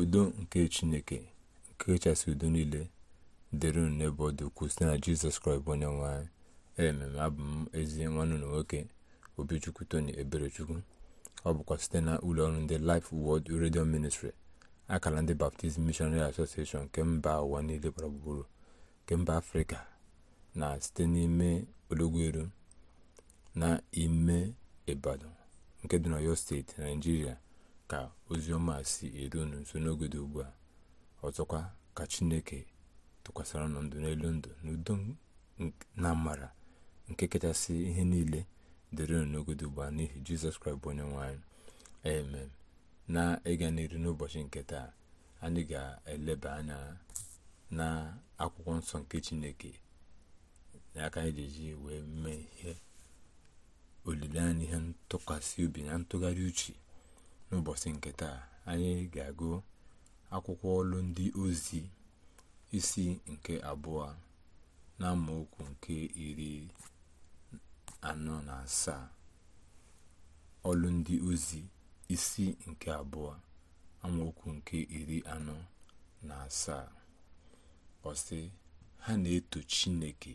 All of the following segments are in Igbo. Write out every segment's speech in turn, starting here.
udo nke chineke nke kachasị udo niile dịrị unu n'ebe ọ dị ukwuu site na jizọs kraịst bụ onye nwanyị ememe abụ m ezi nwanne ụlọ nwoke obichukwu tony eberechukwu ọ bụkwa site na ụlọọrụ ndị Life wọd redio Ministry akara ndị Baptist Missionary Association nke mba ụwa niile gbara gburugburu nke mba afrịka na site n'ime ologweru na ime ibadan nke dị n'Ọyọ steeti naijiria ka ozi ọma si eru unu nso n'oge dị ugbu a ọzọkwa ka chineke tụkwasara unu ndụ n'elu ndụ n'udo na amara nke kachasị ihe niile dịrị unu n'oge dị ugbu a n'ihi jizọs kraịst bụ onye nwanyị amen na ịga n'iru n'ụbọchị nke taa anyị ga-eleba anya na akwụkwọ nsọ nke chineke na aka anyị wee mee ihe olileanya ihe ntụkwasị obi na ntụgharị uche n'ụbọchị nke taa anyị ga-agụ akwụkwọ ọlụ ndị ozi isi nke abụọ na amaokwu nke iri anọ na asaa ọlụ ndị ozi isi nke abụọ amaokwu nke iri anọ na asaa ọsị ha na-eto chineke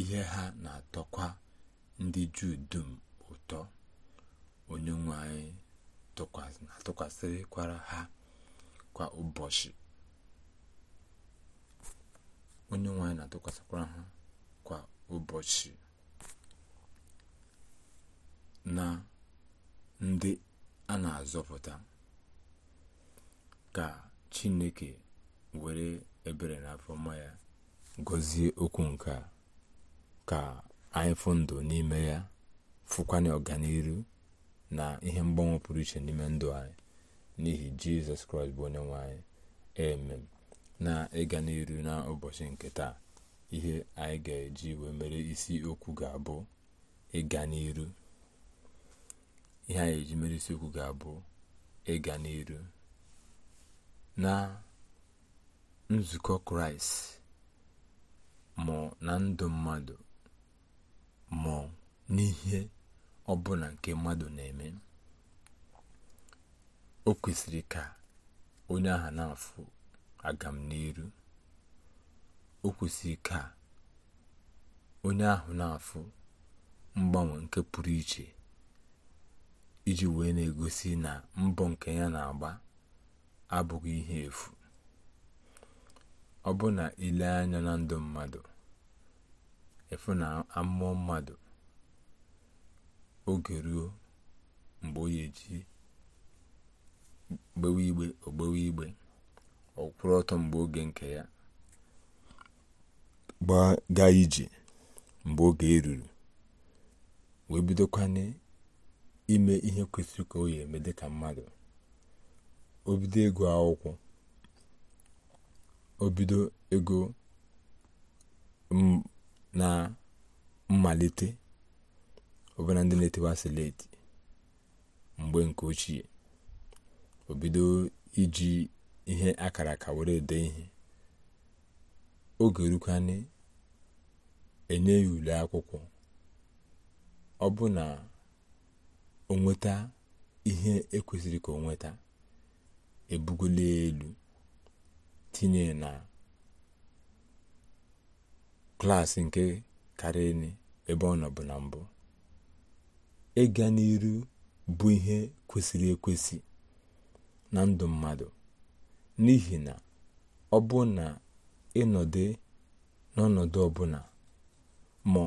ihe ha na-atọkwa ndị juu dum ụtọ onye nwe anyị na ha kwa ụbọchị onye nwe na-atụkwasịkwara ha kwa ụbọchị na ndị a na-azọpụta ka chineke were ebere na afọma ya gọzie okwu nke ka anyị fụ ndụ n'ime ya fụkwanye ọganiru na ihe mgbanwe pụrụ iche n'ime ndụ anyị n'ihi jizọs kraịst bụ onye nwe anyị emem na ịga n'iru na ụbọchị nke taa ihe anyị ga-eji wee mere isi okwu ga-abụ ịga n'iru na nzukọ kraịst ma na ndụ mmadụ ma n'ihe ọbụla nke mmadụ na-eme o kwesịrị ka onye ahụ na-afụ agam n'iru o kwesịrị ka onye ahụ na-afụ mgbanwe nke pụrụ iche iji wee na-egosi na mbọ nke ya na-agba abụghị ihe efu ọ bụ na ile anya na ndụ mmadụ efu na amụọ mmadụ oge ruo mgbe ọ ga gbewe igbe ogbewe igbe ọ ọtọ mgbe oge nke ya gbaga ije mgbe oge eruru wee bidokwana ime ihe kwesịrị ka o ya eme dịka mmadụ obido ego akwụkwọ o bido ego na mmalite ọbụna ndị na-etewa sileti mgbe nke ochie o bido iji ihe akara ka were ede ihe oge na enye ya ule akwụkwọ ọ bụ na o nweta ihe ekwesịrị ka o nweta ebugola elu tinye na klaasị nke karịrị ebe ọ nọ na mbụ ịga n'iru bụ ihe kwesịrị ekwesị na ndụ mmadụ n'ihi na ọ bụ na ịnọdụ n'ọnọdụ ọbụla ma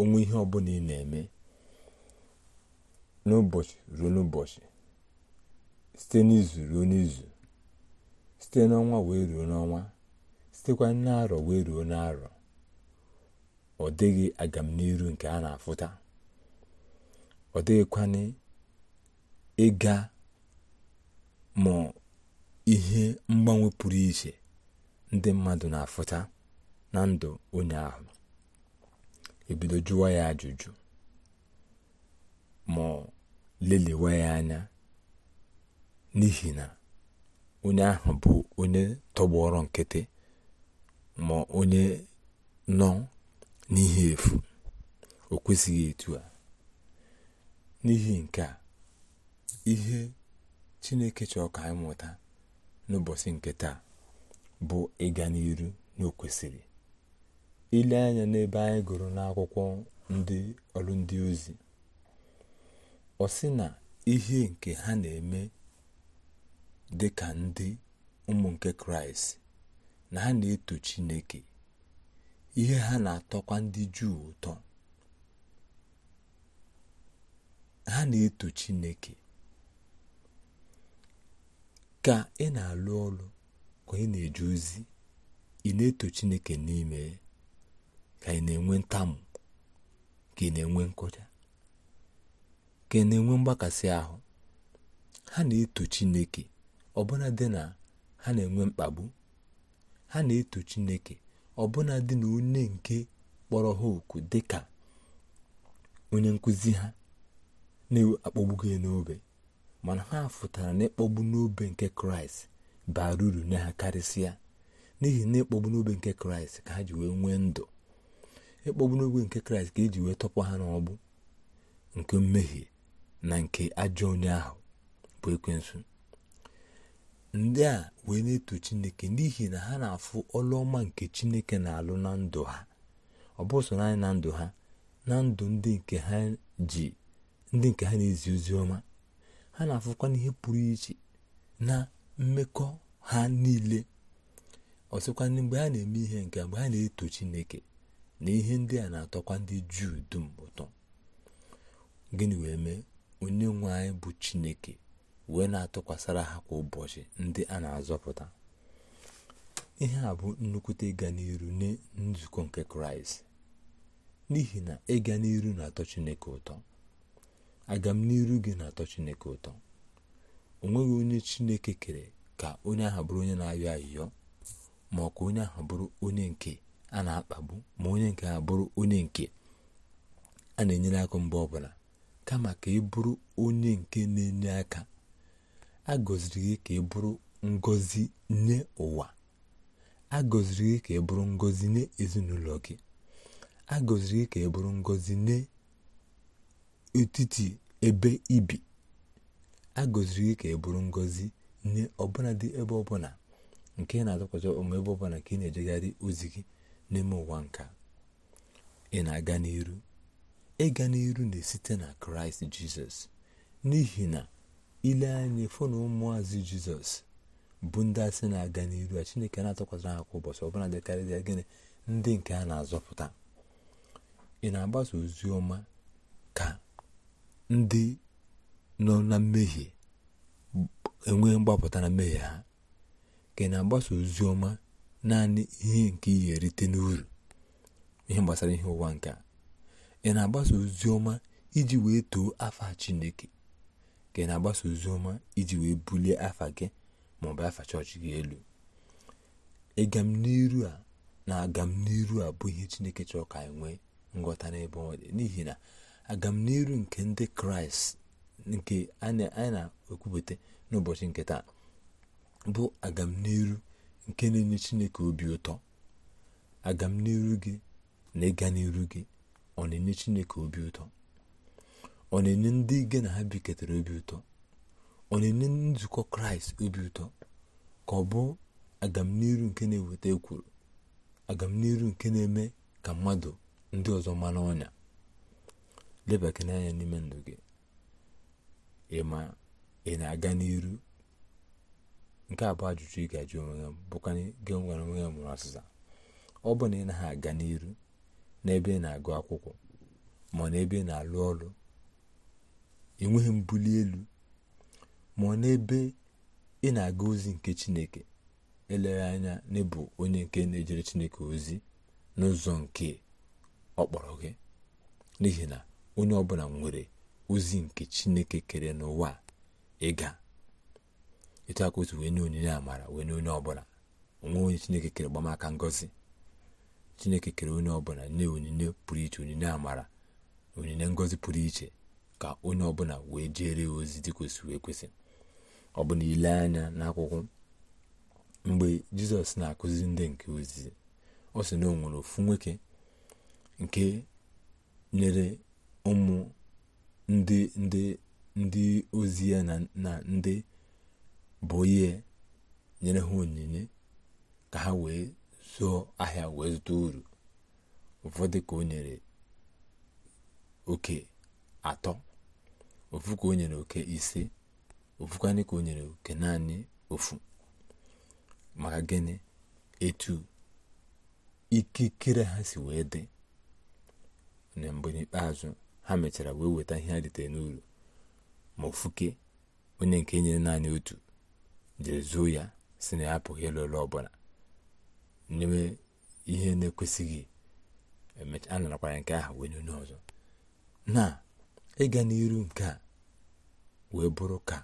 onwe ihe ọbụla ị na-eme n'ụbọchị ruo n'ụbọchị site n'izu ruo n'izu site n'ọnwa wee ruo n'ọnwa sitekwa n'arọ wee ruo n'arọ ọ dịghị agamniru nke a na-afụta ọ dịghịkwana ịga ma ihe mgbanwe pụrụ iche ndị mmadụ na-afụta na ndụ onye ahụ ebido jụwa ya ajụjụ ma lelewa ya anya n'ihi na onye ahụ bụ onye tọgbọrọ nkịtị ma onye nọ n'ihe efu o kwesịghị etu a n'ihi nke a ihe chineke chọọ ka anyị mụta n'ụbọchị nke taa bụ ịga n'iru n'okwesịrị ile anya n'ebe anyị gụrụ n'akwụkwọ ndị ọrụ ndị ozi ọ sị na ihe nke ha na-eme dị ka ndị ụmụ nke kraịst na ha na-eto chineke ihe ha na-atọkwa ndị juu ụtọ ha na-eto chineke ka ị na-alụ ọrụ ka ị na-eje ozi ị na-eto chineke n'ime ka ị na-enwe ntamu ka ị na-enwe nkụja ka ị na-enwe mgbakasị ahụ ha na-eto chineke ọbụna dị na ha na-enwe mkpagbu ha na-eto chineke ọbụna dị na onye nke kpọrọ ha oku ka onye nkụzi ha na-akpọgbugo n'obe mana ha fụtara na ịkpọgbu n'obe nke kraịst bara uru nye ha karịsịa n'ihi na ịkpọgbu n'obe nke kraịst ka ha ji wee nwee ndụ ịkpọgbu n'obe nke kraịst ka eji wee tọpụ ha n'ọgbụ nke mmehie na nke ajọ onye ahụ bụ ekwensu ndị a wee na-eto chineke n'ihi na ha na-afụ ọlụọma nke chineke na-alụ na ndụ ha ọ bụ naanị na ndụ ha na ndụ ndị nke ha ji ndị nke ha na-ezi ozi ọma ha na-afụkwa n'ihe pụrụ iche na mmekọ ha niile ọsịkwa mgbe ha na-eme ihe nke mgbe ha na-eto Chineke na ihe ndị a na-atọkwa ndị Juu dum ụtọ gịnị wee mee onye nwe anyị bụ Chineke wee na atọkwasara ha kwa ụbọchị ndị a na-azọpụta ihe a bụ nnukwute ịga n'iru na nzukọ nke kraịst n'ihi na ịga n'iru na-atọ chineke ụtọ aga m n'iru gị na-atọ chineke ụtọ o nweghị onye chineke kere ka onye ahụ bụrụ onye na-ayọ ayịyọ ma ọ ka onye ahụ bụrụ onye nke a na-akpagbu ma onye nke a bụrụ onye nke a na-enyere aka mgbe ọbụla kama ka ị bụrụ onye nke na-enye aka a gọziri gị ka ị bụrụ ngozi nye ụwa a gọziri gị ka ị bụrụ ngozi nye ezinụlọ gị a gọziri gị ka ị bụrụ ngozi nye etiti ebe ibi a gọziri gị ka ị bụrụ ngọzi nye ọbụladị ebe ọbụla nke na-atụkwasị ụmụ ebe ọbụla ka ị na-ejegharị ozi gị n'ime ụwa nka ị na-aga n'iru ịga n'iru na-esite na kraịst jizọs n'ihi na ile anya fụ na jizọs bụ ndị asị na-aga n'iru a chineke na-atụkwasịra ha kwa ụbọchị ọbụla ya gịnị ndị nke a na-azọpụta ị na-agbasa ozi ọma ka ndị nọ na mmehie enwee mgbapụta na mmehie ha ka ị na-agbasa ozi ọma naanị ihe nke ihe erite n'uru ihe gbasara ihe ụwa nke a ị na-agbasa ozi ọma iji wee too afa Chineke ka ị na-agbasa ozi ọma iji wee bulie afa gị ma ọ bụ afa chọọchị gị elu ịgam n'iru a na agam n'iru a bụ ihe Chineke chọọ ka anyị nwee nghọta n'ebe ọ dị n'ihi na agamniru nke ndị kraịst nke anyị na-ekwupụta n'ụbọchị nke taa bụ agamniru nke na-enye chineke obi ụtọ agamniru gị na ịga n'iru gị ọ na-enye chineke obi ụtọ ọ na-enye ndị gị na ha biketara obi ụtọ ọ na-enye nzukọ kraịst obi ụtọ ka ọ bụ agamniru nke na-eweta ekworo agamniru nke na-eme ka mmadụ ndị ọzọ mara ọnya lebakana anya n'ime ndụ gị ma ị na-aga n'iru nke a bụ ajụjụ ị ga-ajụ onwe ya bụkwa gị nwere onwe ya mụrụ ọsịsa ọ bụ na ị naghị aga n'iru n'ebe ị na-agụ akwụkwọ ma ọ n'ebe ị na-alụ ọrụ enweghị mbuli elu ma ọ n'ebe ị na-aga ozi nke chineke eleghị anya n'ịbụ onye nke na-ejere chineke ozi n'ụzọ nke ọ kpọrọ gị n'ihi na onye ọbụla nwere ozi nke chineke kere n'ụwa ịga etu aka otu wee nye onyinye amara wee nye onye ọbụla onwe onye chineke kere gbamaka ngozi chineke kere onye ọbụla nye onyinye pụrụ iche onyinye amara onyinye ngozi pụrụ iche ka onye ọbụla wee jere ozi dị wee kwesị ọ bụ na ile anya n'akwụkwọ mgbe jizọs na-akụzi ndị nke ozizi ọ sị na o nwere ofu nwoke nke nyere ụmụ ndị ndị ndị ozi ya na ndị bụ ihe nyere ha onyinye ka ha wee zụọ ahịa wee zụta uru ụfọdụ ka o nyere oke atọ ofu ka o nyere oke ise ofukwanị ka o nyere oke naanị ofu maka gịnị etu ikikere ha si wee dị na mgbe n'ikpeazụ ha mechara wee weta ihe ha n'uru ma ofuke onye nke nyere naanị otu jere zuo ya si na ya apụghị ịlụ ọbụla nyewe ihe na-ekwesịghị a narakwara nke ahụ wee nye ọzọ na ịga n'iru nke a wee bụrụ ka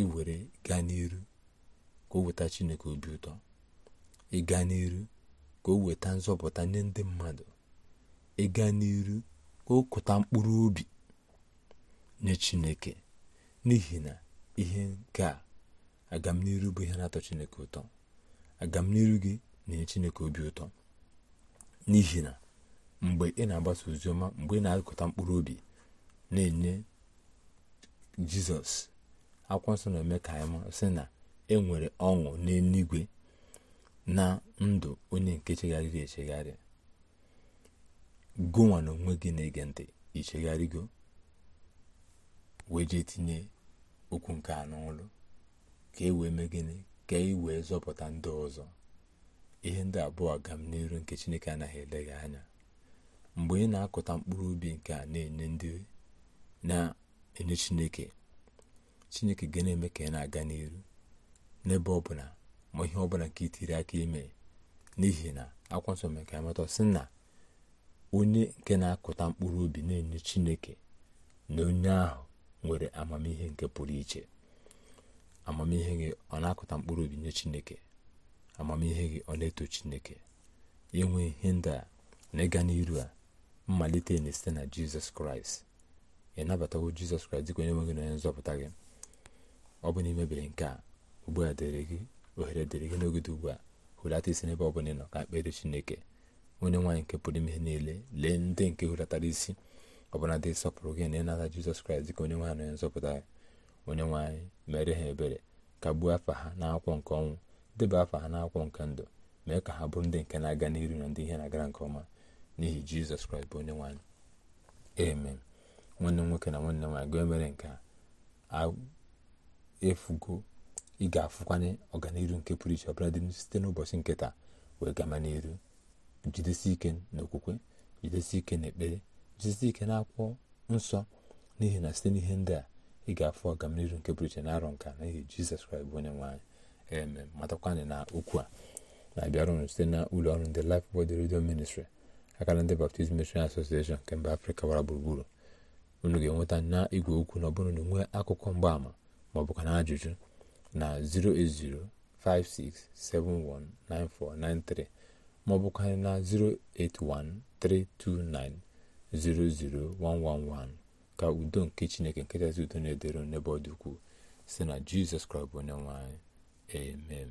iwere were gaa n'iru ka o weta chineke obi ụtọ ịga n'iru ka o weta nzọpụta nye ndị mmadụ ịga n'iru ka mkpụrụ obi nye chineke n'ihi na ihe nke a agamniru bụ ihe na-atọ chineke ụtọ agamniru gị na-enye chineke obi ụtọ n'ihi na mgbe ị na-agbasa oziọma mgbe ị na-akụta mkpụrụ obi na-enye jizọs akwụkwọ nsọ na-eme ka anyị sị na e nwere ọṅụ n'eluigwe na ndụ onye nke chegharịrị echegharị gụnwa na onwe gị na-ege ntị ichegharịgo wee jee tinye okwu nke a n'ọlụ ka e wee mee gịnị ka e wee zọpụta ndị ọzọ ihe ndị abụọ agam n'iru nke chineke anaghị eleghị anya mgbe ị na-akụta mkpụrụ ubi nke a na-enye ndị na-enye chineke chineke ga na-eme ka ị na-aga n'iru n'ebe ọbụla ma ihe ọbụla nke itiri aka ime n'ihi na akwa nsọ mere ka amata sị na onye nke na-akụta mkpụrụ obi na-enye chineke na onye ahụ nwere amamihe nke pụrụ iche amamihe gị ọ na-akụta mkpụrụ obi nye chineke amamihe gị ọ na-eto chineke inwe ihe ndị a na ịga n'iru a mmalite na-esite na jizọs kraịst ị nabatawo jizọs kraịst dịka onye nweghị na onye nzọpụta gị ọ bụ na imebere nke a ugbu a dịrị gị ohere dịrị gị n'oge ugbu a hulata isi n'ebe ọ bụla ị nọ ka mkpere chineke onye nwaanyị nke pụrụ ime niile lee ndị nke hulatara isi ọbụla dị sọpụrụ gị na ịnata jizọs kraịst dịka onye nwaanyị onye nzọpụta onye nwaanyị mere ha ebere kagbuo afa ha n'akwụkwọ nke ọnwụ deba afa ha n'akwụkwọ nke ndụ mee ka ha bụrụ ndị nke na-aga n'iru na ndị ihe na-agara nke ọma n'ihi jizọs kraịst bụ onye nwaanyị amen nwanne nwoke na nwanne m nwaanyị gị mere nke a efugo ị ga-afụkwanye ọganiru nke pụrụ iche ọbụla dị site n'ụbọchị nke wee gama n'iru jidesi ike n'okwukwe jidesi ike n'ekpere jidesi ike n'akwụkwọ nsọ n'ihi na site n'ihe ndị a ị ga-afụ ọgamnihu nke pụrụ iche na arọ nka n'ihi jizọs kraịst bụ onye nwaanyị eme eme matakwana na okwu a na-abịarụnụ site na ụlọ ọrụ ndị Life bod redio Ministry akara ndị Baptist Mission Association nke mba afrịka gbara gburugburu unu ga-enweta na igwe okwu na ọ bụrụ na nwee akụkọ mgbaama maọbụ ka na ajụjụ na 08056719493 maọbụ ka na 08132900111 ka udo nke chineke nkịtasị udo na-edero n'ebe ọ dị ukwuu si na jizọs kraịst bụ onye emem.